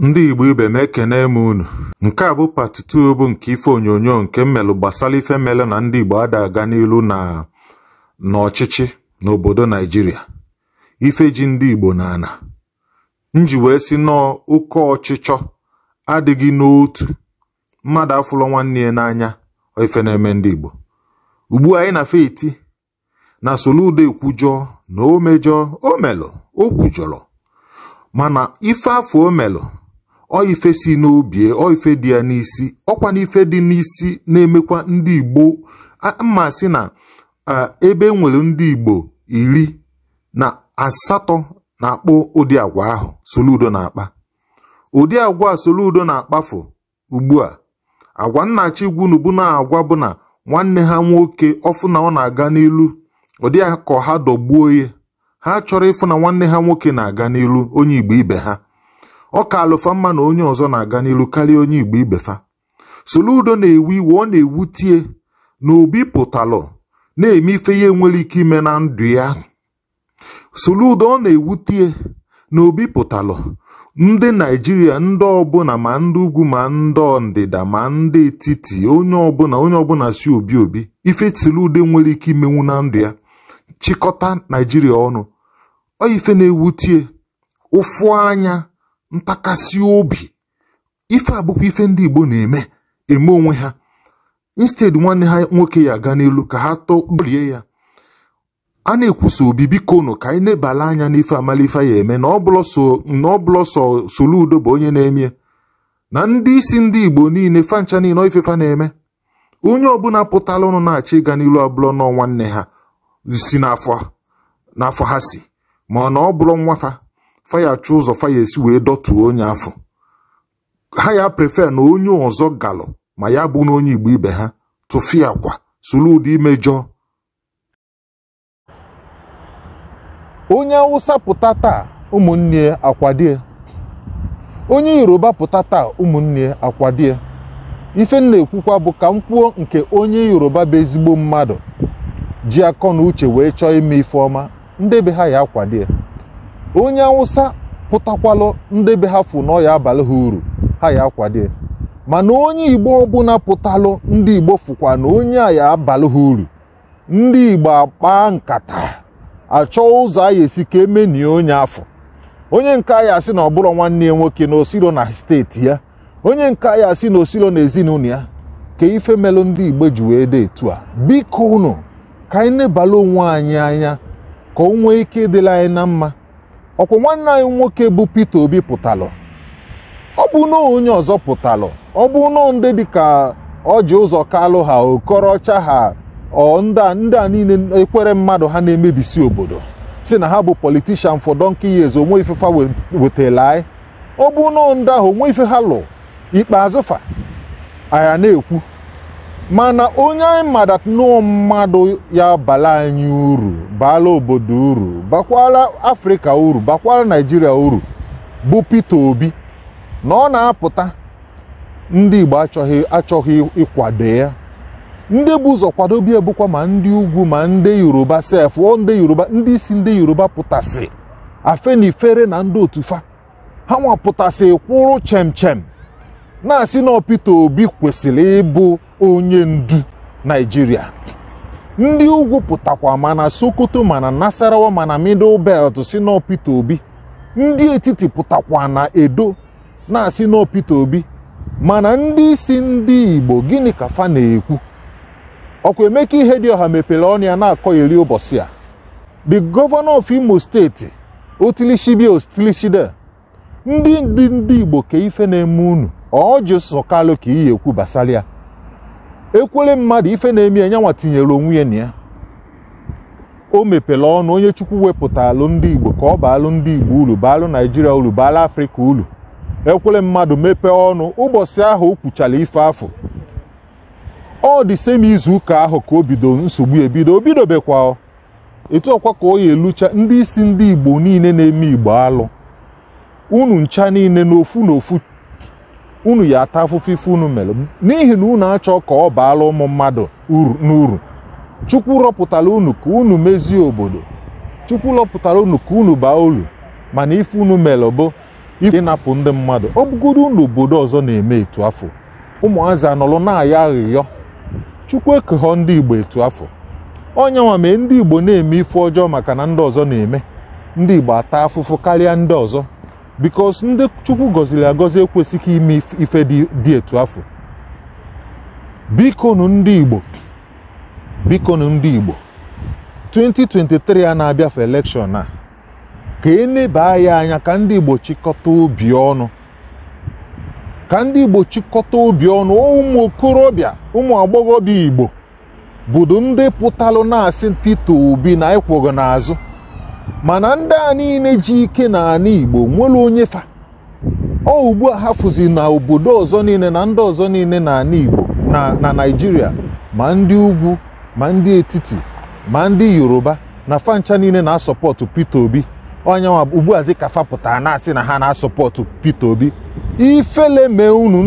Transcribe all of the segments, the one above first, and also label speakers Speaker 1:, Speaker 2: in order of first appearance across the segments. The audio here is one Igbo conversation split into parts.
Speaker 1: Ndị Igbo ibe m ekene m unu nke a bụ pati nke ife onyonyo nke mmelụ gbasara ife mele na ndị Igbo ada aga n'ilu na n'ọchịchị n'obodo Naijiria ife ji ndị Igbo n'ana. ana nji wee si nọọ oke ọchịchọ adịghị n'otu mmadụ afụlọ nwanne ya n'anya ife na-eme ndị Igbo ugbu anyị na feti na soludo ekwujọọ na o omelụ o mana ife afọ o ife si n'obi ife dị ya n'isi ọkwa n'ife dị n'isi na-emekwa ndị Igbo mma sị na ebe e nwere ndị Igbo iri na asatọ na-akpọ ụdị agwa ahụ Soludo na-akpa ụdị agwa Soludo na-akpafu ugbu a agwa nnachi gwunugbu na-agwa bụ na nwanne ha nwoke ọfụ na ọ na-aga n'ilu ụdị ka ha dọgbuo ya ha chọrọ ịfụ na nwanne ha nwoke na-aga n'ilu onye Igbo ibe ha ọ ka alụfa mma na onye ọzọ na-aga n'ilu karịa onye igbo ibefa soludo na-ewu iwe ọ na-ewutie na obi pụtalụ na-eme ife ya nwere ike ime na ndụ ya soludo ọ na-ewutie na obi pụtalụ ndị naijiria ndị ọbụla ma ndị ugwu ma ndị ndịda ma ndị etiti onye ọbụla onye ọbụla si obi obi ife soludo nwere ike imenwu na ndụ ya chịkọta naijiria ọnụ ọ ife na-ewutie ụfụ anya ntakasị obi ife abụkwa ife ndị Igbo na-eme eme onwe ha instead nwanne ha nwoke ya aga n'elu ka ha tọgburie ya a na-ekwusa obi biko nụ ka anyị na anya n'ife amalife ya eme na ọbụlọ Soludo bụ onye na-emie na ndị isi ndị Igbo niile fancha niile ifefa na-eme onye ọbụla pụtala ụnụ na achị ịga n'ilu abụlọ nọ nwanne ha si n'afọ ha si ma na ọ bụrụ nwafa fayachi ụzọ faya esi wee dọtuo onye afọ ha ya prefe na onye ọzọ galụ ma ya bụ n'onye onye igbo ibe ha tụfịa kwa solu ụdị imejọ onye awụsa pụta taa ụmụnne akwadie onye yoruba pụta taa ụmụnne akwadie ife m na-ekwukwa bụ ka m kwuo nke onye yoruba bụ ezigbo mmadụ ji akọ na uche wee chọọ ime ife ọma ndị be ha ya akwadie onye awụsa pụtakwalụ ndị be ha fụ na abalị ha uru ha ya akwado mana onye igbo ọbụla pụtalụ ndị igbo fụkwa na onye a ya abalị ha uru ndị igbo akpa nkata achọ ụzọ a ya esi ka emenie onye afọ onye nke a ya asị na ọbụrụ nwanne ya nwoke na osiro na steeti ya onye nke a ya asị na osiro na ezinụlọ ya ka ife melụ ndị igbo ji wee dị etu a biko unu ka anyị nebala onwe anyị anya ka o nwee ike ịdịla anyị na mma ọkwa nwanne anyị nwoke bụ Peter Obi pụtalụ ọ bụ na onye ọzọ pụtalụ ọ bụ na ndị dịka ọjị ụzọ kalụ ha okorocha ha ndị a niile ekwere mmadụ ha na-emebisi obodo si na ha bụ politishan for donkey years onwe ifefa fa anyị ọ bụ na ndị ahụ onwe ife ha lụ ikpeazụfa fa na-ekwu mana onye anyị ma that mmadụ ya bala anyị uru bala obodo uru bakwala afrịka uru bakwala naijiria uru bụ Peter Obi na ọ na-apụta ndị Igbo achọghị achọghị ịkwado ya ndị bụ ụzọ kwado bịa bụkwa ma ndị ugwu ma ndị yoruba sef ọ ndị yoruba ndị isi ndị yoruba pụtasị afenifere na ndị otufa ha nwapụtasị kwụrụ chem chem na-asị na Peter Obi kwesịrị ịbụ onye ndu naijiria ndị ugwu pụtakwa mana sokoto mana nasarawa mana middle belt si n'opita Obi ndị etiti pụtakwa na edo na-asị n'opita Obi mana ndị isi ndị igbo gịnị ka fa na-ekwu ọkwa emeka ihe dị ọha mepere ọnụ na-akọ iri ụbọchị a the governor of imo steeti otilishibia otilishide ndị ndị igbo ka na-eme unu ọ jụsụ ka iyi ekwu basara ekwere mmadụ ife na-eme ya tinyere onwe ya na ya o mepere ọnụ onye chukwu wepụta alụ ndị igbo ka ọ baalụ ndị igbo uru baalụ naijiria uru baalụ afrịka uru ekwere mmadụ mepee ọnụ ụbọchị ahụ o kwuchara ife afọ ọ dị semi izu ụka ahụ ka o bido nsogbu ebido o bidobekwa etu ọkwa ka ọ ya elucha ndị isi ndị igbo niile na-eme igbo alụ unu ncha niile n'ofu n'ofu unu ya ata afụfụ ife unu mere n'ihi na unu achọ ka ọ baala ụmụ mmadụ n'uru chukwu rọpụtara unu ka unu mezie obodo chukwu rọpụtara unu ka unu baa uru mana ife unu mere bụ ife ịnapụ ndị mmadụ ọ bụgodo unu obodo ọzọ na-eme etu afọ ụmụazị anọrọ na-aya aghịghọ chukwu ekeghọ ndị igbo etu afọ onye nwa mee ndị igbo na-eme ife ọjọọ maka na ndị ọzọ na-eme ndị igbo ata afụfụ karịa ndị ọzọ bikos ndị chukwu gọziri agọzi ekwesịghị ime ife dị etu afọ bikonu ndị igbo 2023 a na-abịafe elekshọn a ka e eleba ya anya ka ndị igbo chịkọta obi ọnụ ka ndị igbo chịkọta obi ọnụ ụmụ okorobịa ụmụ agbọghọbịa igbo bụdo ndị pụtalụ na-asị Obi na ịkwụghị n'azụ mana ndị a niile ji ike na ala Igbo nwere onye fa ọ ugbu a hafụzi na obodo ọzọ niile na ndị ọzọ niile na ala Igbo na naijiria ma ndị ugwu ma ndị etiti ma ndị Yoruba na fancha niile na-asọpọtụ Peter Obi onyanwa ugbuazi ka fapụta na-asị na ha na-asọpọtụ Peter Obi ifele mee unu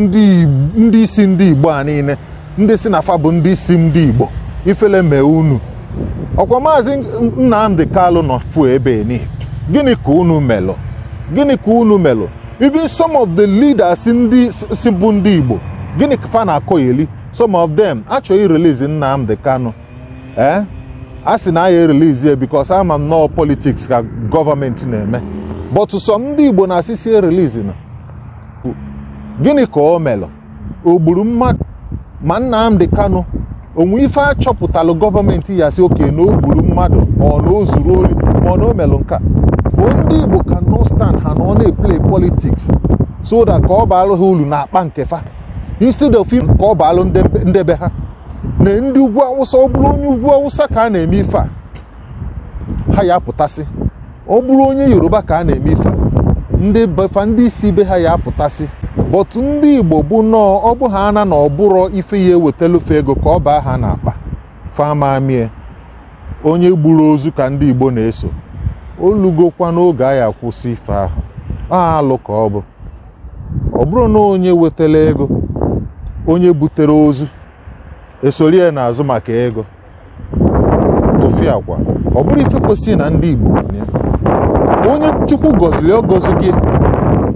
Speaker 1: ndị isi ndị Igbo a niile ndị si na fa bụ ndị isi ndị Igbo ifele mee unu ọkwa maazị nnamdị Kalu nọ fu ebe ni gịnị ka unu melụ gịnị ka unu melụ even some of the leaders ndị si bụ ndị Igbo gịnị ka fa na-akọgheli some of them achọghị release nnamdị Kanu ee eh? a sị na aya release ya because ama m nọọ politics ka gọọmenti na-eme but sọ ndị Igbo na-asị sie release na gịnị ka o melụ Ogburu gburu mmadụ ma Nnamdi Kanu onwe ife achọpụtalụ gọọmenti ya si oke na o gburu mmadụ ọ na o zuru ori ma ọ na o melụ nka bụ ndị igbo ka no stand ha na ọ na-eplay politiks soda ka ọ baalụ ha ulu na akpa nke fa instead of ka ọ baalụ ndebe ha na ndị ugwu awụsa ọ bụrụ onye ugwu awụsa ka a na-eme ife a ha ya apụtasị ọ bụrụ onye yoruba ka a na-eme ife a ndị befa ndị isi be ha ya apụtasị bọtụ ndị igbo bụ nnọọ ọ bụghị ana na ọbụrọ ife ya ewetalufe ego ka ọ baa ha n'akpa fama mie onye gburu ozu ka ndị igbo na-eso olugokwa n'oge ya akwụsị ife ahụ alụ ka ọ bụ ọ bụrụ na onye wetara ego onye butere ozu esori n'azụ maka ego tofia akwa ọ bụrụ ife kwesịrị na ndị igbo onye chukwu gọziri ọ gọzi gị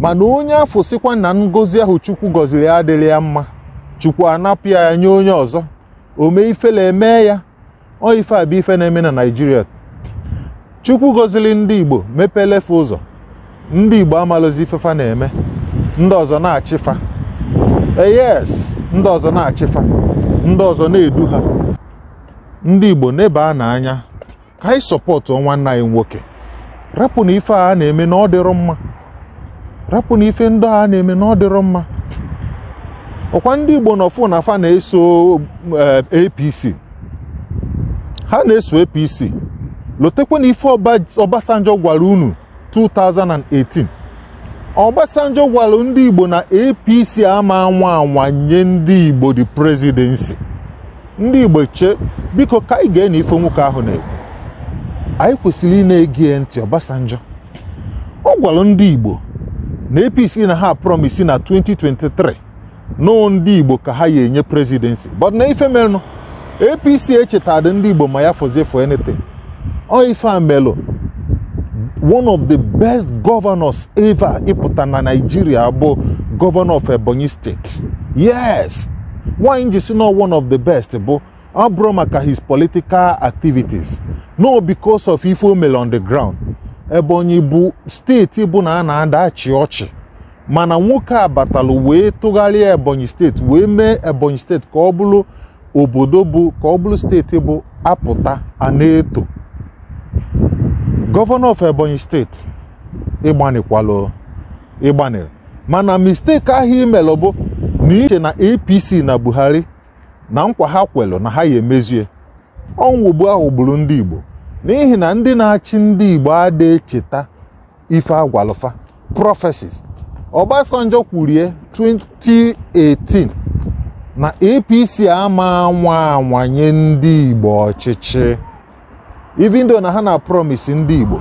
Speaker 1: mana onye afọ sikwa na ngozi ahụ chukwu gọziri ya adịrị ya mma chukwu anapụ ya nye onye ọzọ omee ifela eme ya ọ ife a bụ ife na-eme na naijiria chukwu gọziri ndị igbo mepelefe ụzọ ndị igbo amalụzi ifefa na-eme ndị ọzọ na-achịfa eyes ndị ọzọ na-achịfa ndị ọzọ na-edu ha ndị igbo neba n'anya ka anyị sọpọtụ nwanne anyị nwoke rapụ na ife a na-eme na ọ dịrụ mma rapụ na ife ndị a na-eme na ọ mma ọkwa ndị Igbo nọfụ na afa na-eso eh, APC ha na-eso APC lotekwa na ife Obasanjo gwara unu 2018 Obasanjo gwara ndị Igbo na APC ama anwa anwa nye ndị Igbo di prezidensi ndị Igbo che biko ka anyị ga na ife nwoke ahụ na-ekwu anyị kwesịrị ị na ntị Obasanjo ọ gwara ndị Igbo na apc na ha promise na 2023 na ndị igbo ka ha ya enye presidency but na ife melụ apc echetadị ndị igbo ma ya fọzie for anything ọ ife one of the best governors ever ịpụta na Nigeria bụ governor of ebonyi State. yes why ji si na one of the best bụ ọ maka his political activities no because of ife o on the ground Ebonyi bụ steeti bụ na a na achị ọchị mana nwoke a batalụ wee tụgharịa Ebonyi steeti wee mee Ebonyi steeti ka ọ bụrụ obodo bụ ka ọ bụrụ steeti bụ apụta an'eto. gọvanọ of Ebonyi steeti ịgbanikwalụ ịgbanere mana mistake ahụ imelụ bụ na iche na APC na Buhari na nkwa ha kwelụ na ha ya emezie ọnwụgbu ahụ ndị Igbo n'ihi na ndị na-achị ndị Igbo adịghị echeta ife agwalụfa prọfesis Obasanjo kwurie 2018 na APC ama anwa anwanye ndị Igbo ọchịchị ivindo na ha na promise ndị Igbo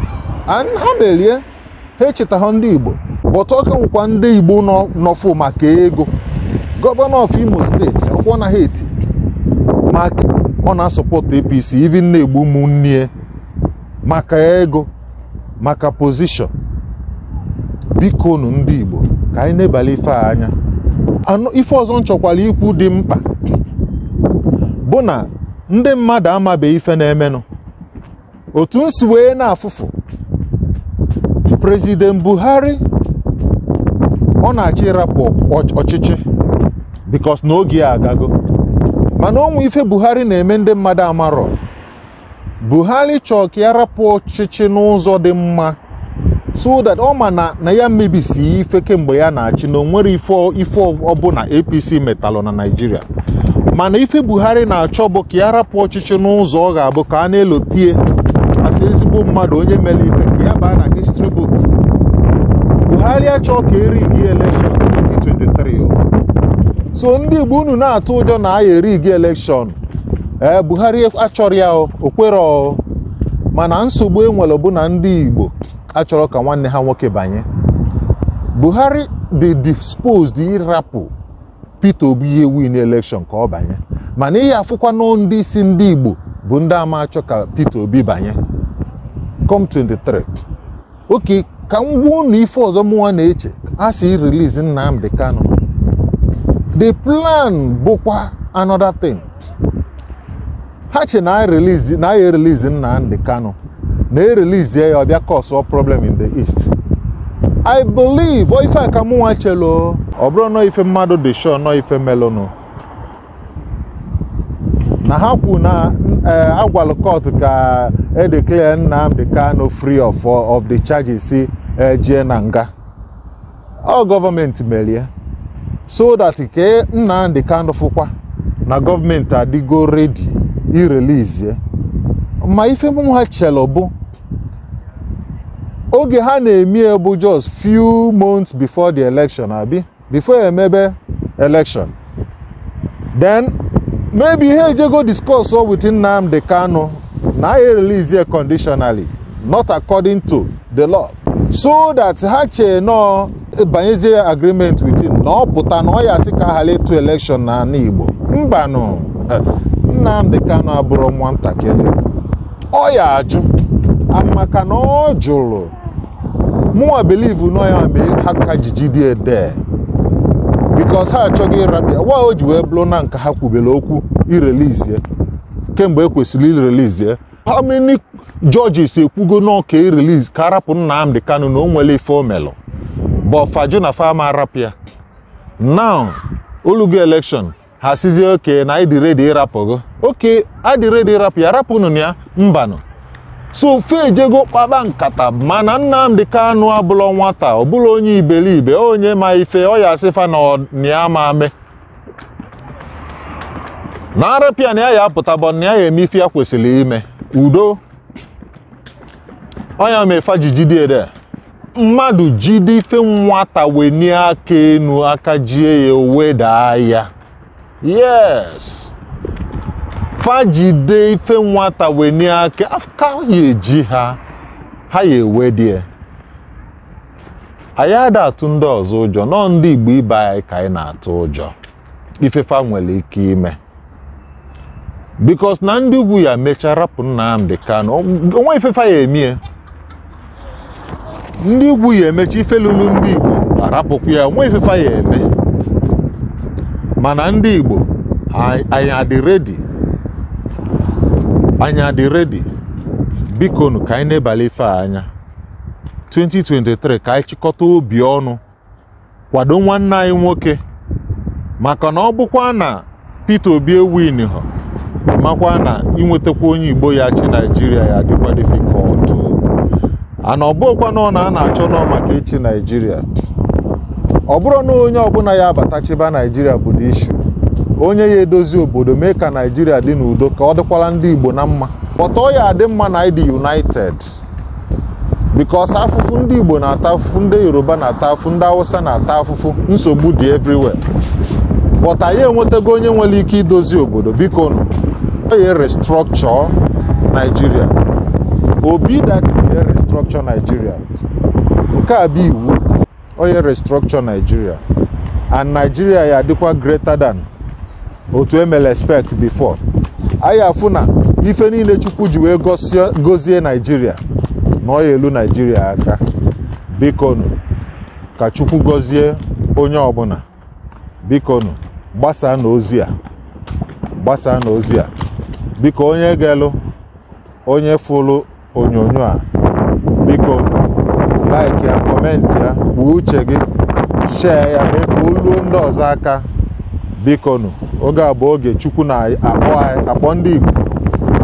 Speaker 1: ha merie ha echeta ha ndị Igbo ọka nwekwa ndị Igbo nọfụ maka ego gọvanọ of Imo steeti ọkwọ na ha eti maka ọ na-asọpọtụ APC ivi na-egbu ụmụnne maka ego maka pozishọn biko nu ndị Igbo ka anyị na ife a anya ife ọzọ nchọkwala ikwu dị mkpa bụ na ndị mmadụ amabeghị ife na-emenụ otu m wee na-afụfụ prezident Buhari ọ na-achọ ịrapụ ọchịchị bikos na oge ya agago mana ụmụ ife Buhari na-eme ndị mmadụ amarọ buhari chọọ ka ya rapụ ọchịchị n'ụzọ dị mma so that ọ ma na na ya mebisi ife kemgbe ya na-achị na onwere ife ọbụla apc metalụ na naijiria mana ife buhari na-achọ bụ ka ya rapụ ọchịchị n'ụzọ ọ ga-abụ ka a na-elotie asị ezigbo mmadụ onye mere ife ka ya baa na history book buhari achọ ka eri gị election 2023 so ndị igbo unu na-atụ ụjọ na a ya eri gị election ee eh, buhari e- achọrọ ya okwero mana nsogbu enwere bụ na ndị igbo achọrọ ka nwanne ha nwoke banye buhari dị disposed ịrapụ peter obi ihe win election ka ọ banye mana ihe afụkwa ndị isi ndị igbo bụ ndị ama achọ ka peter obi banye com 23 oke ka m gwa unu ife ọzọ mụwa na-eche a sị release nnamdi Kano. the plan bụkwa another thing. ha che na e e e ya erelizi ndị kano na erelizie ya ọbịa cause problem in the east I believe ife ka mụnwa chelo ọ bụrụ nọ ife mmadụ dị sure nọ ife melonu na ha kwu na eh, agwalụ court ka e declare Nnamdi kano free of of the charges ejie eh, na nga ọ gọọmenti merie so that ke Nnamdi kano fụkwa na gọọmenti adịgo redi irelizie eh? ma ife mụ ha chelo bụ oge ha na-emie bụ just few months before the election abi before emebe election then maybe ha ejego discuss all within Nnamdi Kanu na ha release conditionally not according to the law so that ha chee nọ banyezie agreement within na ọ pụta na ọ ya si ka ha letu election na ala Igbo mbanụ Nnamdi Kanu abụrụ ntakịrị ọ ya ajụ maka na ọ jụrụ mụnwa bilivu nọ ya mee ha ka dị ede bikos ha achọghị ịrabịa wa o ji wee bụrụ na nke ha kwubere okwu irelizie kemgbe ekwesịrị irelizie how many judges ekwugo n'ọka ireliz ka arapụ Nnamdi Kanu na o nwere ife omelụ bọfajụ na fama arapịa now olugo election ha sizie oke na ịdị redi ịrapụgo oke adị redi ịrapụ ya rapụnụ ya mbanụ so fe ejego kpaba nkata mana ka anụ abụlọ nwata ọbụla onye iberibe onye ma ife ọ ya asịfa na ya ma ame na arapịa na ya ya apụtabọ na ya ya eme ife ya kwesịrị ime udo ọnya mefa jijidede mmadụ jide ife nwata wenie aka enu aka jie ya owe daa ya yes fajide ife nwata wenye aka ka ya eji ha ha ya anyị ada atụ ndị ọzọ ụjọ nọ ndị igbo ibe anyị ka anyị na-atụ ụjọ ifefa nwere ike ime bikos na ndị ugwu ya mechara rapụ onwe emechi ife ndị ya onwe ifefa ya eme mana ndị Igbo anyị adị redi bikonu ka anyị na-ebali ife anya 2023 ka anyị chịkọta obi ọnụ kwado nwanne anyị nwoke maka na ọ bụkwa na Peter Obi ewin ha makwa na inwetakwa onye Igbo ya chi Naijiria ya dịkwa difikọltụ ana ọbụkwa na ọ na a na-achọ nọ maka echi Naijiria ọ bụrụ na onye ọbụla ya abatachiba naijiria bụ dị issue onye ya edozi obodo mee ka naijiria dị n'udo ka ọ dịkwala ndị igbo na mma ọ ya adị mma na ịdị united bikos afụfụ ndị igbo na-ata afụfụ ndị yoruba na-ata afụfụ ndị awụsa na-ata afụfụ nsogbu dị everywhere but anyị enwetago onye nwere ike idozi obodo biko nụ onye restructure naijiria obi that restructure Nigeria nke a bụ iwu onye restructure naijiria and naijiria ya adịkwa greater than otu emele expect before anyị afụ na ife niile Chukwu ji wee gozie Nigeria na ọ ya elu naijiria aka bikonu ka Chukwu gozie onye ọbụla bikonu gbasaa na a gbasaa na a biko onye ga-elu onye fụlụ onyonyo a biko like ya ya buo uche gị shee ya mee ka oluo ndị ọzọ aka bikonu oge a bụ oge chukwu na-akpọ ndị igbo ka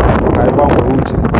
Speaker 1: anyị gbanwee uche